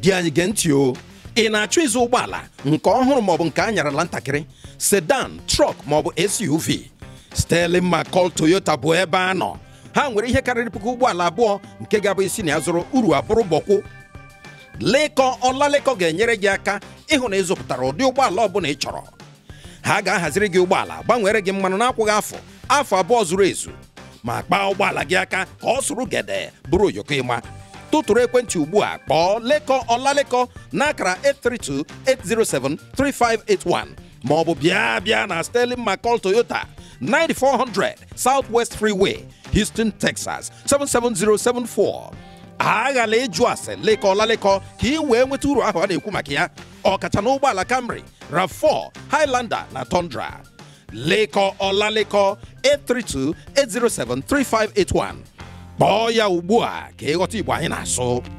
di anyị gee ntị o ị na-achọ ịzụ ụgbọala nke ọhụrụ maọbụ nke anyarala ntakịrị sedan trọk maọbụ SUV Sterling Macall Toyota bụ ebe a nọ ha nwere ihe karịrị puku ụgbọala abụọ nke ga-abụ isi na ya zụrụ uru abụrụ bọkwụ lekọ ọlalekọ ga-enyere gị aka ịhụ na ịzụpụtara ụdị ụgbọala bụla ị chọrọ ha ga-ahaziri gị ụgbọala gbanwere gị mmanụ n'akwụghị afọ afọ abụọ zuru ezu ma kpaa ụgbọala gị aka ka ọ sụrụ gede bụrụ oyoko ịma tụtụrụ ekwentị ugbu a kpọọ lekọ ọlalekọ n'akara 832-807-3581 ma ọ bụ bịa bịa na Sterling McCall Toyota 9400 Southwest Freeway Houston Texas 77074 aghala ịjụ ase lekọ ọlalekọ ka ị wee nweta uru ahụ a na-ekwu maka ya ọkacha na ụgbọala Camry RAV4 Highlander na Tundra lekọ ọlalekọ 832-807-3581 kpọọ ya ugbu a ka ịghọta Igbo anyị na-asụ